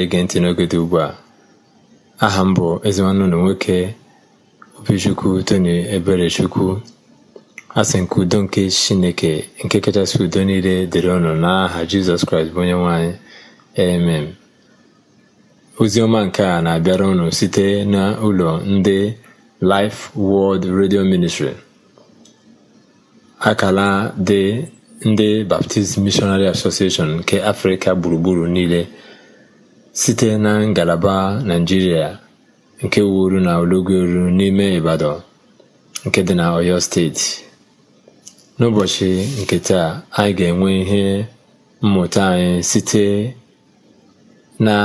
na-ege ntị n'oge dị ugbu a aha m bụ ezenwanne nwoke obichukwu tony eberechukwu asị nke udo nke chineke nke kachasị udo niile dịrị ọnụ n'aha jizọs kraịst bụ onye nwanyị emem ọma nke a na-abịara ọnụ site n'ụlọ ndị Life World redio Ministry akala dị ndị Baptist Missionary Association nke Afrịka gburugburu niile site na ngalaba Naijiria nke wuru na ologoru n'ime Ibadan nke dị na Oyo steeti n'ụbọchị nke taa anyị ga-enwe ihe mmụta anyị site na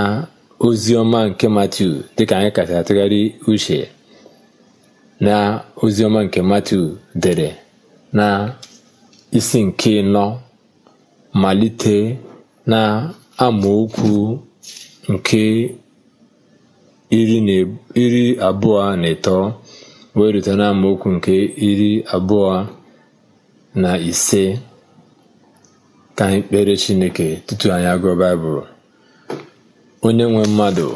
ozi ọma nke matu dịka anyị kachasị atụgharị uche na ozi ọma nke matu dere na isi nke nọ malite na amaokwu nke iri abụọ na ịtọ wee rute amaokwu nke iri abụọ na ise ka anyị kpere Chineke tutu anyị agụọ Baịbụl onye nwe mmadụ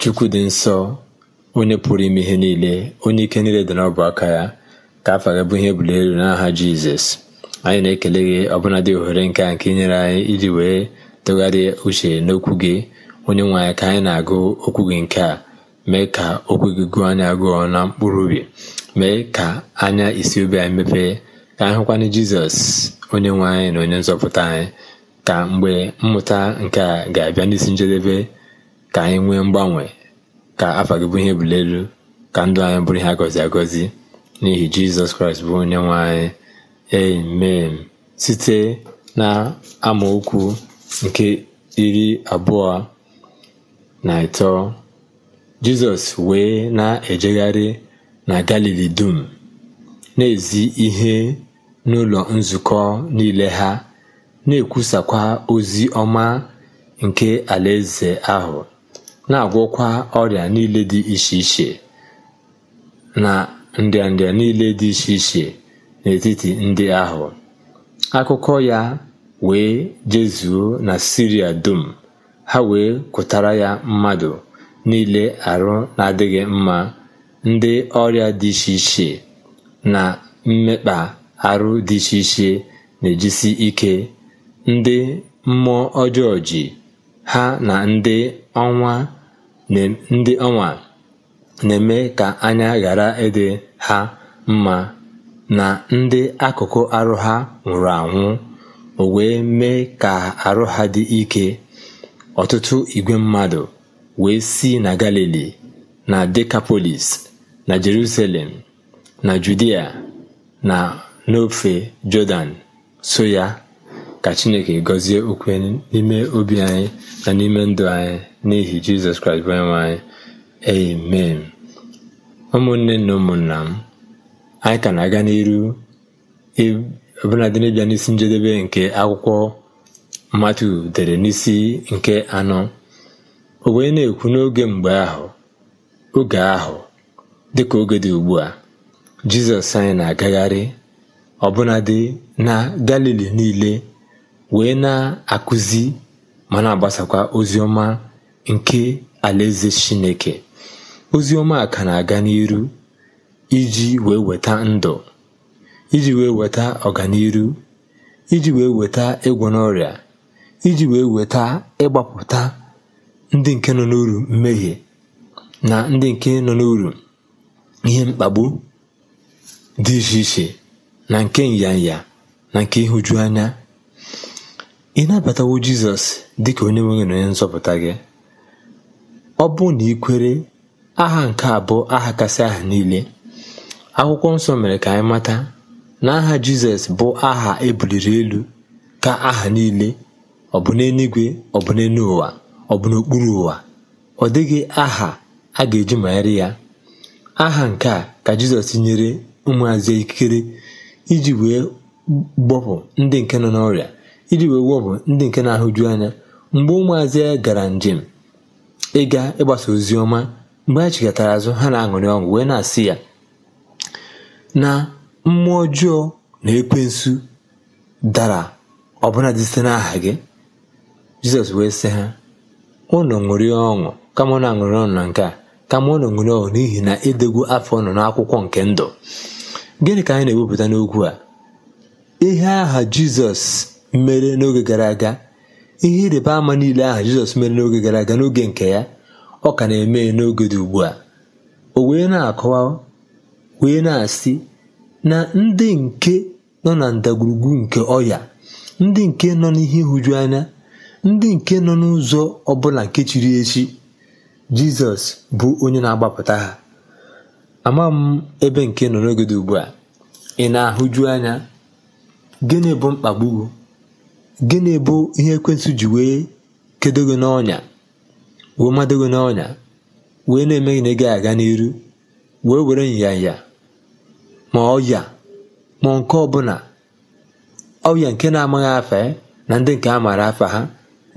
Chukwu dị nsọ onye pụrụ ime ihe niile onye ike niile dị n'ọbụ aka ya ka afa gị bụ ihe ebuli elu n'aha Jizọs anyị na-ekele gị dị ohere nke a nke inyere anyị iji wee tụgharịa uche n'okwu gị onye nwe anyị ka anyị na-agụ okwu gị nke a mee ka okwu gị gụọ anya gụọ na mkpụrụ ubi. mee ka anya isi obi anyị mepee ka anyị hụkwana jizọs onye nwe anyị na onye nzọpụta anyị ka mgbe mmụta nke a ga-abịa n'isi njedebe ka anyị nwee mgbanwe ka afọ gị bụ ihe ebuli elu ka ndụ anyị bụrụ ihe agọzi agọzi n'ihi jizọs kraịst bụ onye nwe anyị amen site na amaokwu nke iri abụọ na ịtọ jizọs wee na-ejegharị na galili dum na-ezi ihe n'ụlọ nzukọ niile ha na-ekwusakwa ozi ọma nke alaeze ahụ na-agwọkwa ọrịa niile dị iche iche na nrịanrịa niile dị iche iche n'etiti ndị ahụ akụkọ ya wee jezuo na siria dum ha wee kwụtara ya mmadụ niile arụ na-adịghị mma ndị ọrịa dị iche iche na mmekpa arụ dị iche iche na-ejisi ike ndị mmụọ ọjọọ ji ha na ndị ọnwa na-eme ka anya ghara ịdị ha mma na ndị akụkụ arụ ha nwụrụ anwụ o wee mee ka arụ ha dị ike ọtụtụ igwe mmadụ wee si na galili na dekapolis na jerusalem na judia na n'ofe jọdan soya ya ka chineke gọzie okwu n'ime obi anyị na n'ime ndụ anyị n'ihi jizọs kraịst bụ onyenwe anyị amen ụmụnne na ụmụnna m anyị ka na-aga n'iru ọbụladị n'ịbịa n'isi njedebe nke akwụkwọ Matiu dere n'isi nke anọ o wee na-ekwu n'oge mgbe ahụ oge ahụ dịka oge dị ugbu a Jizọs anyị na-agagharị ọbụnadị na Galili niile wee na-akụzi ma na-agbasakwa ozi ọma nke Alaeze Chineke ozi ọma ka na-aga n'iru iji wee weta ndụ iji wee weta ọganiru iji wee weta ịgwọ n'ọrịa iji wee weta ịgbapụta ndị nke nọ n'uru mmehie na ndị nke nọ n'uru ihe mkpagbu dị iche iche na nke nyanya na nke ịhụju anya ị nabatawo jizọs dịka onye nwe na onye nzọpụta gị ọ bụ na ị kwere aha nke abụọ aha kasị aha niile akwụkwọ nsọ mere ka anyị mata na aha jizọs bụ aha ebuliri elu ka aha niile ọ bụ n'eluigwe ọ bụ n'elu ụwa ọ bụ n'okpuru ụwa ọ dịghị aha a ga-eji manyere ya aha nke a ka jizọs nyere ụmụazị ikikere iji wee gbọpụ ndị nke nọ n'ọrịa iji wee gbọpụ ndị nke na-ahụju anya mgbe ụmụazị gara njem ịga ịgbasa ozi ọma mgbe ha chịkọtara azụ ha na-aṅụrị ọṅụ wee na-asị ya na mmụọ ọjọọ na ekwensu dara ọbụladị site n'aha gị Jizọs wee sị ha unu ṅụrịa ọṅụ kama unu aṅụrị ọṅụ na nke a kama unu ṅụrịa ọṅụ n'ihi na edegwu afọ nọ n'akwụkwọ nke ndụ gịnị ka anyị na-ewepụta n'okwu a ihe aha Jizọs mere n'oge gara aga ihe ịrịba ama niile aha Jizọs mere n'oge gara aga n'oge nke ya ọ ka na-eme n'oge dị ugbu a o wee na-akọwa wee na-asị na ndị nke nọ na ndagwurugwu nke ọya ndị nke nọ n'ihe nhụju anya ndị nke nọ n'ụzọ ọbụla nke chiri echi jizọs bụ onye na-agbapụta ha ama m ebe nke nọ n'oge dị ugbu a ị na-ahụju anya gịnị bụ mkpagbu gịnị bụ ihe ekwensụ ji wee kedo gị n'ọnya wee mado gị n'ọnya wee na-eme gị na ị ga-aga n'iru wee were nyanya ma ọya ma nke ọbụla ọya nke na-amaghị afa eh, na ndị nke a maara afa ha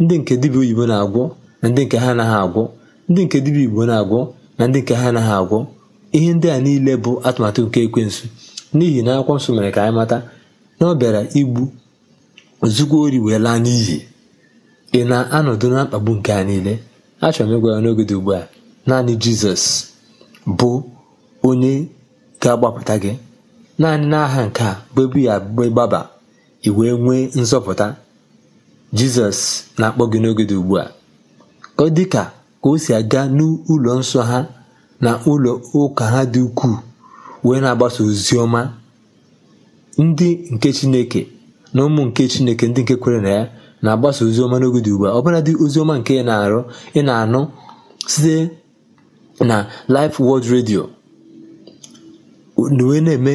ndị nke dibịa oyibo na-agwọ na ndị nke ha anaghị agwọ ndị nke dibịa igbo na-agwọ na ndị nke ha anaghị agwọ ihe ndị a niile bụ atụmatụ nke ekwensu n'ihi na akwụkwọ nsọ mere ka anyị mata na ọ bịara igbu ozugbo ori wee laa n'iyi ị na-anọdụ na mkpagbu nke a niile achọrọ m ịgwa ya n'oge dị ugbu a naanị jizọs bụ onye ga-agbapụta gị naanị n'aha nke a bụ ebu ya gbaba wee nwee nzọpụta jizọs na-akpọ gị n'oge dị ugbu a ka ọ dị ka ka o si aga n'ụlọ nsọ ha na ụlọ ụka ha dị ukwuu wee na-agbasa ozi ọma ndị nke chineke na ụmụ nke chineke ndị nke kwere na ya na-agbasa ozi ọma n'oge dị ugbu a ọbụladị ozi ọma nke ị na-arụ ị na-anụ site na lif World redio wee na-eme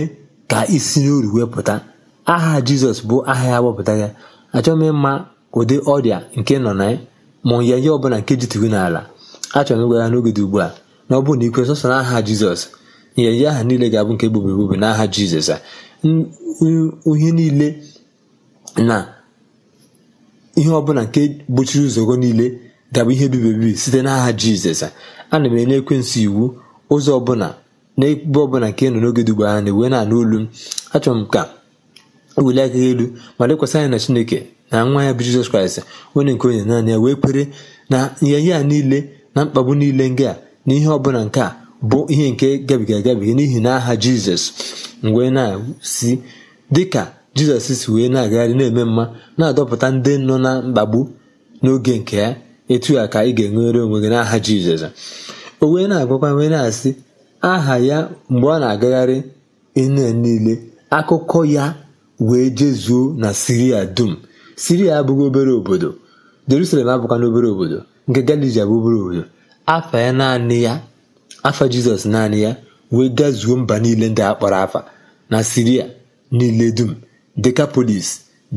ka isi n'oru wee pụta aha jizọs bụ aha ya wepụta ya achọghị ịma. ụdị ọrịa nke nọ na ma onye ihe ọbụla nke jitugo n'ala achọrọ m ịgwa ya n'oge dị ugbu a na ọ bụrụ na ikwe sọsọ n'aha jizọs nyeye aha niile ga-abụ nke bube n'aha jizọs a ihe niile na ihe ọbụla nke gbochiri ụzọgo niile ga-abụ ihe ebibi site n'aha jizọs ana m enye ekwensị iwu ụzọ ọbụla na ebe ọbụla nke nọ n'oge dị ugbu a na-ewe na-anụ olu m achọrọ m ka eweli aka elu ma lekwasị anya na chineke na nwa ya bụ jizọs kraịst onye nke onye naanị ya wee kwere na a niile na mkpagbu niile nke a na ihe bụla nke a bụ ihe nke gabiga agabiga n'ihi na aha jizọs mgbe na-si dịka jizọs si wee na-agagharị na-eme mma na-adọpụta ndị nọ na mkpagbu n'oge nke ya etu a ka ị ga-enwere onwe gị n'aha jizọs o wee na-agwakwa wee na-asị aha ya mgbe ọ na-agagharị ihe niile akụkọ ya wee jezuo na siria dum siria abụghị obere obodo jerusalem abụkwana obere obodo nke galili abụ obere obodo afa ya naanị ya afa jizọs naanị ya wee gazuo mba niile ndị a kpọrọ afa na siria niile dum dekapolis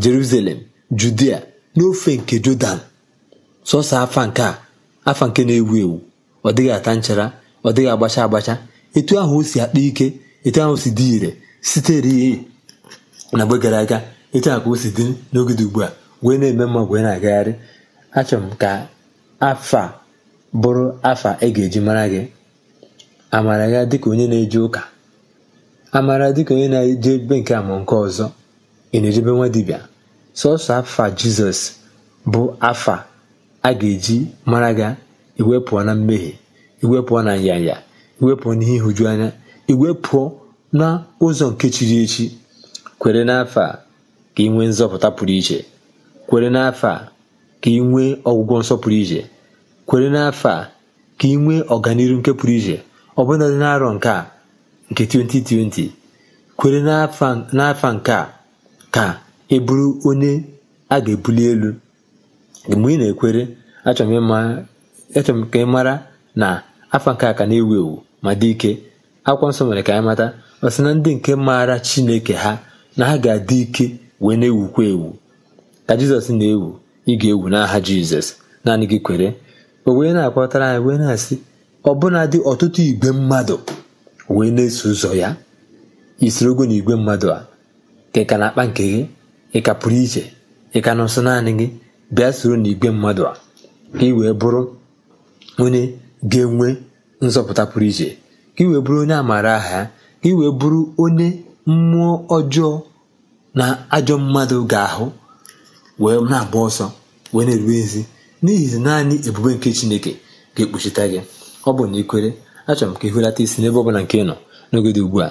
jerusalem judia n'ofe nke jọdan sọsọ afa nke a afa nke na-ewu ewu ọ dịghị ata nchara ọ dịghị agbacha agbacha etu ahụ o si akpa ike etu ahụ si dị ire sitere na mgbe gara aga etu a ka o si dị n'oge dị ugbu a wee na-eme mma wee na-agagharị achọrọ m ka afa bụrụ afa ị e ga-eji mara gị amara ya dịka onye na-eje ụka amara dịka onye na-eje ebe nke a nke ọzọ ị na-ejebe nwa dibịa sọsọ afa jizọs bụ afa a ga-eji mara ga iwepụọ na mmehie iwepụọ na nyanya iwepụọ n'ihe ihuju anya iwepụọ na ụzọ nke chiri echi kwere n'afa ka ị nwee nzọpụta pụrụ iche kwere n'afọ a ka ị nwee ọgwụgwọ nsọ pụrụ iche kwere n'afọ a ka ị nwee nke pụrụ iche ọbụna dị n'arọ nke a nke 2020 kwere n'afọ nke a ka ị e bụrụ onye a ga-ebuli elu mgbe ị na-ekwere achọrọ m ka ị mara na afọ nke a ka na-ewu ewu ma dị ike akwụkwọ nsọ mere ka anyị mata ọsị na ndị nke maara Chineke ha na ha ga-adị ike wee na-ewukwa ewu ka jizọs na-ewu ị ga-ewu n'aha jizọs naanị gị kwere o wee na-akpọtara anyị wee na-asị ọbụnadị ọtụtụ igwe mmadụ wee na-eso ụzọ ya ogo na igwe mmadụ a ka ị ka na-akpa nke gị ị ka pụrụ iche ị ka nọ naanị gị bịa soro na igwe mmadụ a ka ị wee bụrụ onye ga-enwe nzọpụta pụrụ iche ka ị wee bụrụ onye amaara aha ya ka ị wee bụrụ onye mmụọ ọjọọ na ajọ mmadụ ga-ahụ wee na-agba ọsọ wee na-erube ezi n'ihi naanị ebube nke chineke ga-ekpuchite gị ọ bụ na ikwere achọrọ m ka ị hụlata isi n'ebe ọbụla nke nọ n'oge dị ugbu a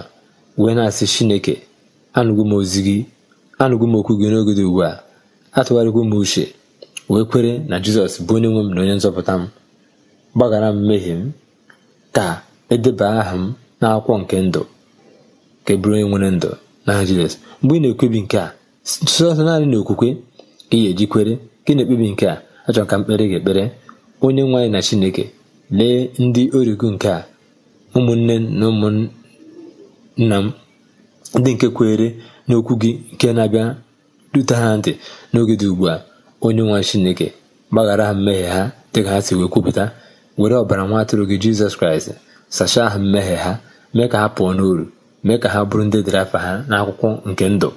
wee na-asị chineke anụgo m ozi gị anụgo m okwu gị n'oge dị ugbu a atụgharịkwa m uche wee kwere na jizọs bụ onye nwe m na onye nzọpụta m gbaghara m mmehie m ka edeba aha m n'akwụkwọ nke ndụ ka e bụrụ onye nwere ndụ n'aha Jizọs mgbe ị na ekwebi nke a sọsọ naanị na okwukwe ka ị ga-eji kwere ka na-ekpebi nke a achọrọ ka mkpere ga-ekpere onye nwe anyị na Chineke lee ndị origo nke a ụmụnne na ụmụnna m ndị nke kwere n'okwu gị nke na-abịa rute ha ntị n'oge dị ugbu a onye nwa Chineke gbaghara ha mmehie ha dịka ha si wee kwupụta were ọbara nwa atụrụ gị Jizọs Kraịst sachaa ha mmehie ha mee ka ha pụọ n'uru mee ka ha bụrụ ndị dịrị afa ha n'akwụkwọ nke ndụ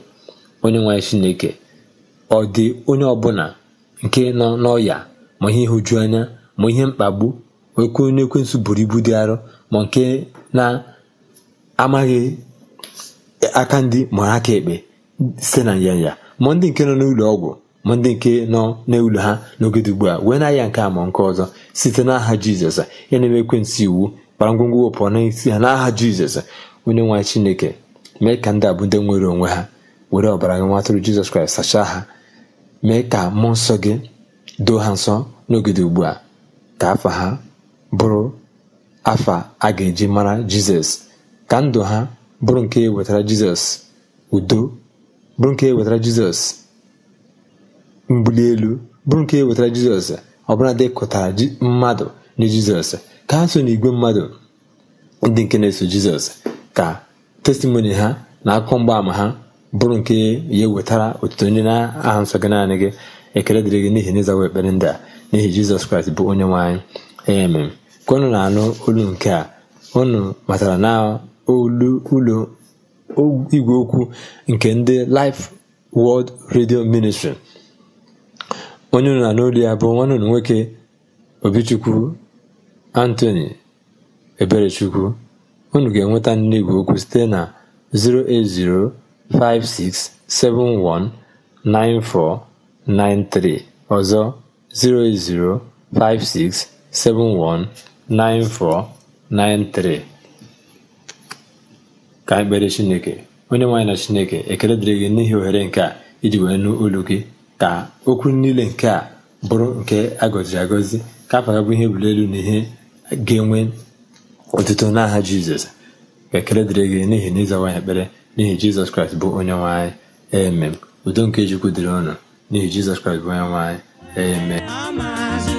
onye nwanyị chineke ọ dị onye ọbụla nke nọ n'ọya ma ihe ịhụju anya ma ihe mkpagbu oke onye ekwensụ buru ibu dị arọ ma nke na-amaghị aka ndị ma aka ekpe site na nyanya ma ndị nke nọ n'ụlọ ọgwụ ma ndị nke nọ n'ụlọ ha n'oge dugbu ugbu a wee na-aya nke a ma nke ọzọ site n'aha aha jizọs ya na-eme ekwensụ iwu kpara ngwongwo na n'isi ha n'aha jizọs onye nwaanyị chineke mee ka ndị a ndị nwere onwe ha were ọbara gị nwa atụrụ jizọs kraịst sachaa ha mee ka mmụọ nsọ gị doo ha nsọ n'oge ugbu a ka afa ha bụrụ afa a ga-eji mara jizọs ka ndụ ha bụrụ nke e wetara jizọs udo bụrụ nke e wetara jizọs mbuli elu bụrụ nke e wetara jizọs ọbụla dị kụtara mmadụ nye jizọs ka ha so n'igwe mmadụ ndị nke na-eso jizọs ka testimoni ha na akụkọ mgbaama ha bụrụ nke ya wetara otuto ndị na-aha nsọ gị naanị gị ekele dịrị gị n'ihi na ekpere ndị a n'ihi jizọs kraịst bụ onye nwe anyị ka unu na-anụ olu nke a unu matara na olu ụlọ igwe okwu nke ndị Life World Radio Ministry onye unu na olu ya bụ nwanne unu nwoke Obichukwu Anthony Eberechukwu unu ga-enweta nne okwu site na 08056719493 ọzọ 08056719493 ka ekpere kpere Chineke onye nwaanyị na Chineke ekele dịrị gị n'ihi ohere nke a iji wee nụ olu gị ka okwu niile nke a bụrụ nke agọziri agọzi ka afọ bụ ihe ebuli elu na ihe ga-enwe ọtụtụ n'aha jizọs ka dịrị gị n'ihi na ịzawa ekpere n'ihi jizọs kraịst bụ onye nwe anyị udo nke chukwu dịrị ọnụ n'ihi jizọs kraịst bụ onye nwe anyị